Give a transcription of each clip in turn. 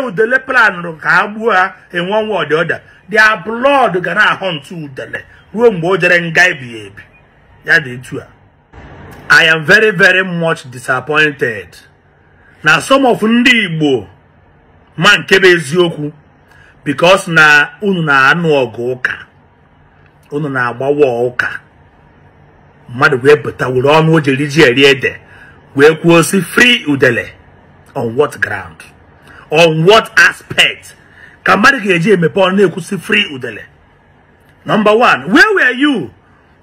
udele planụrụ ka a gbuo ha enwe nwa ọdịọda dia blọd ga na udele ruo mgbe o jere nga ebighị eh, ebi ya dị etu a I am very very much disappointed na some of ndị Igbo ma nke bụ eziokwu bikos na unu na-anụ ọgụ ụka unu na-agbawa ụka mmadụ wee bụta were ọnụ o ji eri ede wee kwuo si free udele on what ground on what aspect ka mmadụ ga-eji emepe ọ na-ekwusi free udele number one where were you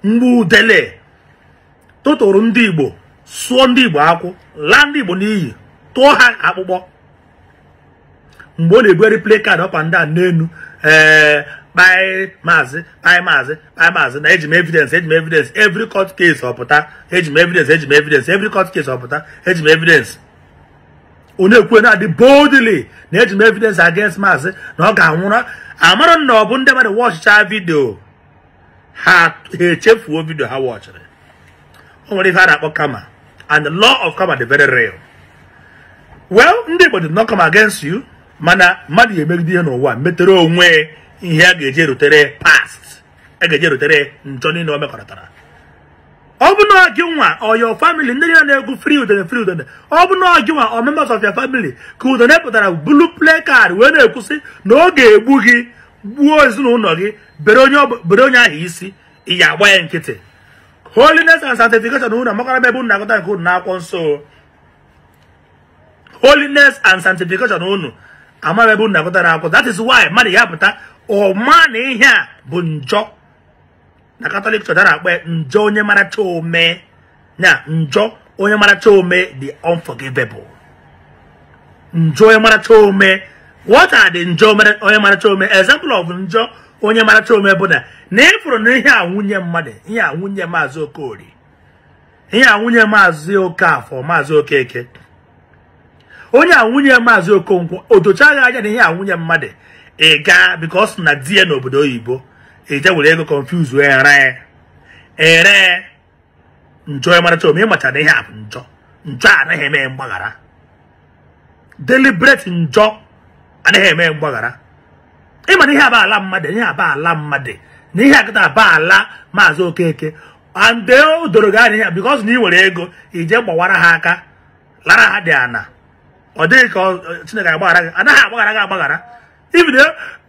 mgbe udele tụtụrụ ndị igbo sụọ ndị igbo akwụ laa ndị igbo n'iyi tụọ ha akpụkpọ mgbe ọ na-ebugharị play card up and down n'elu ee eh, kpai maazị kpai maazị kpai maazị na eji evidence eji evidence every court case ọpụta eji evidence eji evidence every court case ọpụta eji evidence onye kwuo na-adị boldly na eji m evidence against maazị na ọ ga-anwụrụ amara na ọ bụ ndị mmadụ wọchịcha vidio ha echefuo vidio ha wọchịrị o nwere ihe a na-akpọ kama and the law of kama dị very real well ndị Igbo not come against you mana mmadụ ga-emegide ihe n'ụwa metere onwe ihe a ga eje erutere past a ga rutere erutere njọ niile o mekọrịtara ọ bụ na gị nwa ọ your family ndị ya na-egwu fri udene free udene ọ bụ na gị nwa ọ members of your family ka udene pụtara bulu card wee na-ekwusị na ọ ga-egbu gị gbuo ezinụlọ gị bere onye ahụ isi ị agba ya nkịtị holiness and sanctification unu amakwara ebe unu na-agụta nke unu n'akwụkwọ nso. holiness and sanctification unu amara ebe unu na-agụta n'akwụkwọ that is why mmadụ ya pụta ọma na ihe a bụ njọ na katọlik chọrọ akpe njọ onye maracha ome na njọ onye maracha ome the unforgivable njọ onye maracha ome what are the njọ onye maracha ome example of njọ onye maracha ome bụ na na ịfụrụ e na ihe a nwunye mmadụ ihe a nwunye maazị ihe a nwunye maazị okafọ maazị okeke onye a maazi okonkwo o dochaghị anya na ihe a nwunye mmadụ ị gaa because na di ya n'obodo oyibo eje were ego confuse wee ere njọ ịmaracha ome ịmacha na ihe a bụ njọ njọ anaghị eme mgbaghara deliberate njọ anaghị eme mgbaghara ịmana ihe aba ala mmadụ ihe aba ala mmadụ na ihe akịta aba ala maazị okeke ande o doro gị anya because na ị were ego ije gbawara ha aka lara ha dị ana ọ dịghị ka chineke agbaghara gị anaghị agbaghara gị agbaghara ibido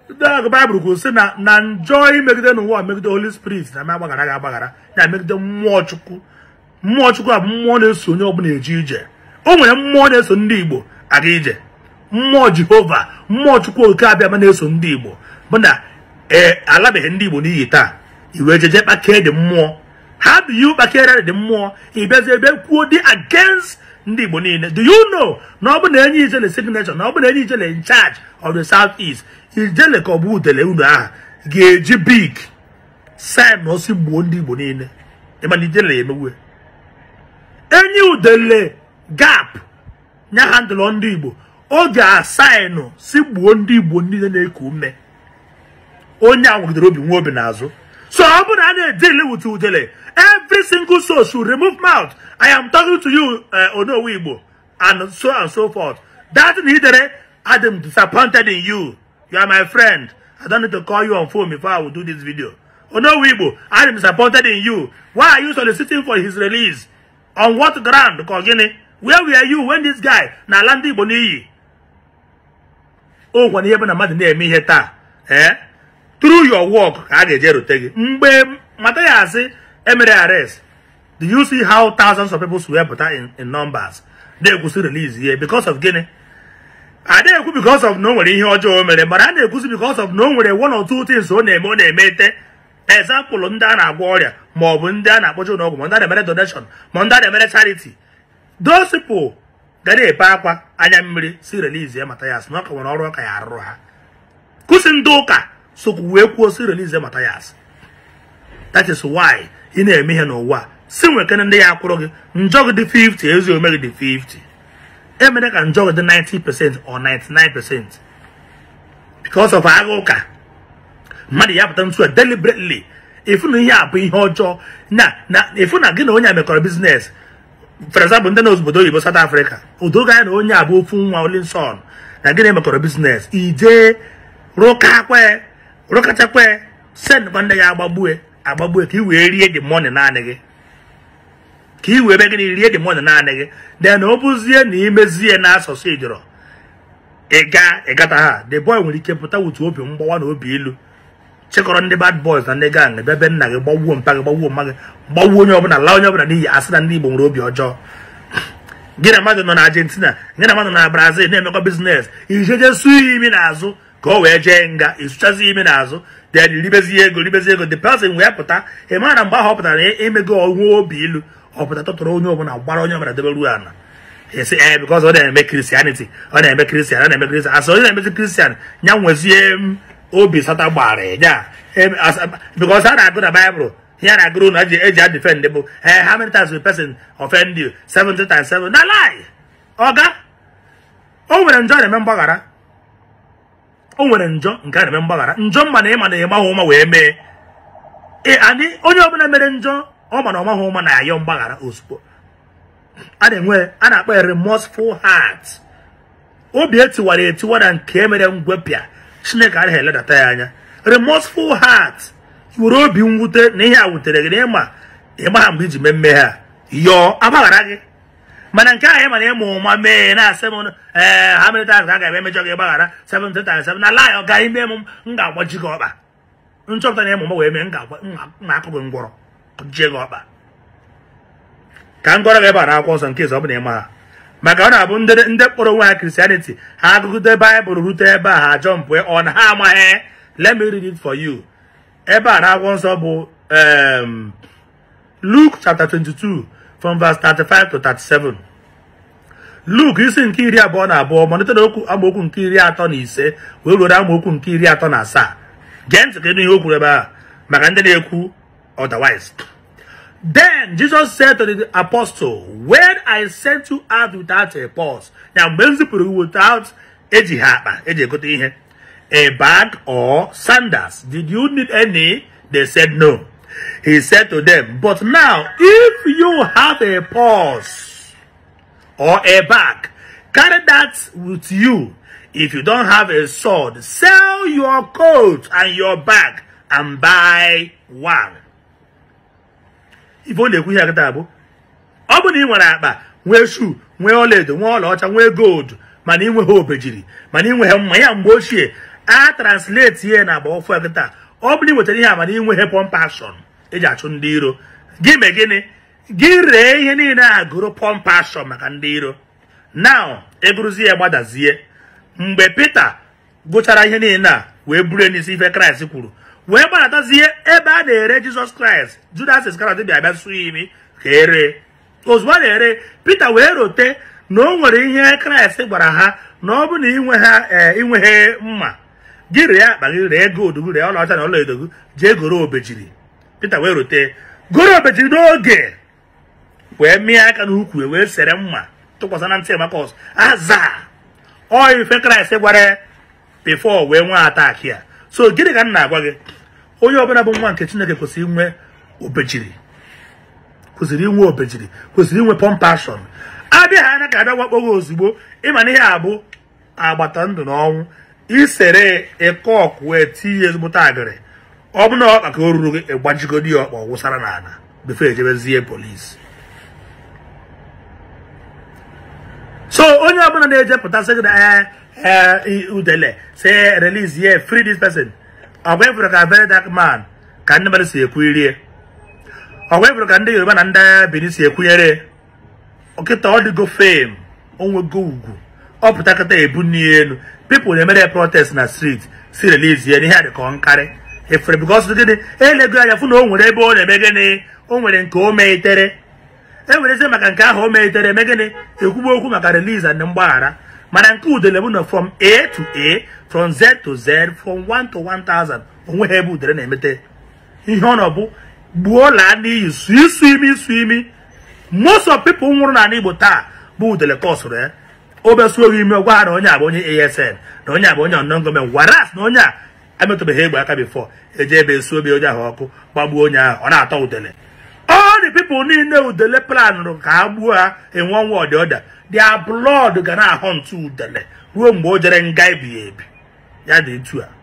agụ baịbụl kwuru sị na na njọ imegide n'ụwa megide holy spirit na agbaghara gị agbaghara na megide mmụọ chukwu mmụọ chukwu a mmụọ na-eso onye ọbụla eje ije o nwere mmụọ na-eso ndị igbo aga ije mmụọ jehova mmụọ chukwu oke abịama na-eso ndị igbo mụ na ee alabeghị ndị igbo n'iyi taa iwe jeje kpakee dị mmụọ ha do you kpakere dị mmụọ ịbịazi ebe kwuo di against ndị igbo niile do you know na ọ bụ na enye na signature na ọ bụ na enye na in charge of the south east ijele ka ọ bụ udele unu aha ga-eji big sin na osi gbuo ndị igbo niile na ijele ya emewe enyi udele gap nya handụlọ ndị igbo ọ ga-asainụ si gbuo ndị igbo niile na-eku ume onye a obi nwa obi n'azụ so ọ bụrụ na a na-edili wit udele every single soul should remove mouth i am talking to you eh, onowe igbo and so and so forth that na idere i am disappointed in you You are my friend. I don't need to call you on phone before I will do this video. Oh no, Wibo, I am disappointed in you. Why are you soliciting for his release? On what ground, Kogini? Where were you when this guy, Nalandi Boniyi? Oh, when he happened to me here, eh? Through your work, I get to take it. Mbe, Matayasi, Emere arrest. Do you see how thousands of people swear in, in numbers? They release here because of Guinea. a na-ekwu because of na o nwere ihe ọjọọ o mere mara a na-ekwuzi because of na o nwere one or two things ọ na-eme ọ na eme te example ndị a na-agwọ ọrịa ma ọ bụ ndị a na-akpọje ụlọọgwụ ma ndị a na-emere donation ma ndị a na-emere charity dosipụ ga na-epe akwa anya mmiri si release ya Mathias na nwere ọrụ ọka ya arụrụ ha kụsi ndị ụka sokwu wee kwuo si release ya Mathias that is why ị na-eme ihe n'ụwa si nwekene ndị ya akwụrụ gị njọ gị dị 50 ezi ome gị dị 50 emere ka njọ dị 90% or 99% because of agha ụka mmadụ ya pụta ntu deliberately efu na ihe a bụ ihe ọjọọ na efu na gị na onye a biznes for example ndị na obodo oyibo South Africa odoga e ya na onye a bụ ofu nwa Olinsọn na gị na emekọrọ biznes ije rụkachakwe sendịkwa ndị ya agbagbue agbagbue ka i the money naanị gị ka i were gịnị rie demon naanị gị de na ọ bụzie na imezie na asụsụ ijọrọ ịga ịgata ha the boy nwere ike pụta wutu obi mgbawa na obi ilu chịkọrọ ndị bad boys na ndị gang bịa be nna gị gbawuo mpa gị gbawuo mma gị gbawuo onye ọbụla laa onye ọbụla n'iyi asị na ndị Igbo nwere obi ọjọọ gị na mmadụ nọ na Argentina gị na mmadụ na Brazil na-emekọ biznes ijeje su imi n'azụ ka o wee jee nga ịsụchazi imi n'azụ then ribezie ego ribezi ego the person wee pụta ị mara mgbe ahụ ọ pụtara na e, onwe obi ilu ọpụta tụtụrụ onye ọbụla gbara onye ọbụla debe ruo ala esi ee bikọs ọ na-eme kristianity ọ na-eme kristian ọ na-eme kristian asị onye na-emezi kristian ya nwezie mm, obi sata gbara ya bikọs a na-agụ na baịbụl ya na-agụrụ na eji a defend bụ ee eh, how many times will person offend you Seventy times seven na lie ọga o nwere njọ na-eme mgbaghara o nwere njọ nke a na-eme mgbaghara njọ mma na ịma na ịmahụ ụma wee mee Ee anyị onye ọbụla mere njọ ọ ma na ọmaghị na ayọ mgbaghara ozugbo a na-enwe a na-akpọ ya remorseful heart obi etiwara etiwa na nke mere ngwepịa chineke anaghị eledata ya anya remorseful heart were obi mwute na ihe a wutere gị na ịma ịmagha mgbe iji mee mmehie a yọọ agbaghara gị mana nke anyị mana ịmụ ụma mee na-asị m ee ha a ga-eme emejọ gị gbaghara 737 na ala ya ọ ime m m ga-agbaji gị ọkpa nchọpụta na ịmụ m wee mee m na-akụ gị ngwọrọ jie ọkpa ka m gị ebe a n'akwụkwọ nsọ nke ọ bụla ị ha maka ọ na-abụ ndị kpọrọ onwe ha kristianity ha agụgụde baịbụl rute ebe a ha jọmpụ ọ na ha amaghị let me read it for you ebe a n'akwụkwọ nsọ bụ Luke chapter 22 from verse 35 to 37 luk isi nke iri abụọ na abụọ malite na okwu amaokwu nke iri atọ na ise wee ruo amaokwu nke iri atọ na asaa gee ntị ihe o ebe a maka ndị na-ekwu otherwise. Then Jesus said to the apostle, When I sent you out without a purse, now basically without a bag or sandals, did you need any? They said no. He said to them, But now, if you have a purse or a bag, carry that with you. If you don't have a sword, sell your coat and your bag and buy one. ife ọ na-ekwu ihe akịta abụ ọ bụ na ị nwere akpa nwee shu nwee ọlaedo nwee ọlaọcha nwee goldu mana ịnweghị obejiri mana ịnweghị mma ya mgbe ochie a translate ihe na agba ofu akịta ọ bụrụ iwetara ihe a mana ịnweghị pọmpashọn eji achụ ndị iro gị mee gịnị gị ree ihe niile a gụrụ pọmpashọn maka ndị iro naụ egụrụzie ya gbadazie mgbe Pita gụchara ihe niile a wee buru n'isi ife Kraịst kwuru wee gbanatazie ebe a na-ere jizọs kraịst judas iskariot bịa bịa sụọ imi ka ere ozugbo a na-ere pita wee rote na o nwere ihe kraịst gwara ha na ọ bụ na inwe ha e, inweghị mma gị rịa akpa gị ree gold gị ree ọlaọcha na ọla edo gị jee goro obejiri pita wee rote goro obejiri n'oge wee mịa aka n'ukwu wee sere mma tụkwasị na ntị emakọs aza ọ ife kraịst gwara bifo wee nwee ataki a so gịnị ka m na-agwa gị onye ọbụla bụ nwa nke chineke kwesịrị inwe obejiri kwesịrị inwe obejiri kwesịrị inwe pọmpashọn abịa ana anya ka abịa wakpo ozugbo ịma na ihe abụ agbata ndụ na ọnwụ isere ịkọ ọkụ wee tinye ezigbote agịrị ọ bụ na ọkpa ka o ruru gị ịgbajigodi ya ọkpa wụsara n'ala before ejebezie polisi so onye ọbụla na-ejepụta sị gị na ee uh, Udele, say, release here, free this person. Away from a very dark man, can never see a query. Away from a Yoruba na Benisi a query. Okay, to all go fame, on go. Up Takata Ebunian, people they made a protest in the street, see release here, and had a dị If because look at it, hey, you know, they born on when they go, nwere eze maka nke ahụ o mehitere eme gịnị okwu maka release and mgbaghara mana nke udele bụ na from a to a from z to z from 1 to 1000 onwe ha ebe udele na-emete ihe ọ nọ bụ gbuo laa n'iyi su isu imi isu imi most of people nwụrụ na Igbo taa bụ udele ka sụrụ ya eh? obesuo gị ime gwa ha na onye a onye asn na onye a bụ onye unknown government waras na onye a emetụbeghị egbe aka bifọ eje ebe esu obi onye ahụ ọkụ gbagbuo onye ahụ ọ na-atọ udele ọ dị pipụl niile udele planụrụ ka ha gbuo ha enwe ọnwa ọdịọda their blood ga na-ahọ ntu udele ruo mgbe o jere nga ebighị ebi ya dị etu a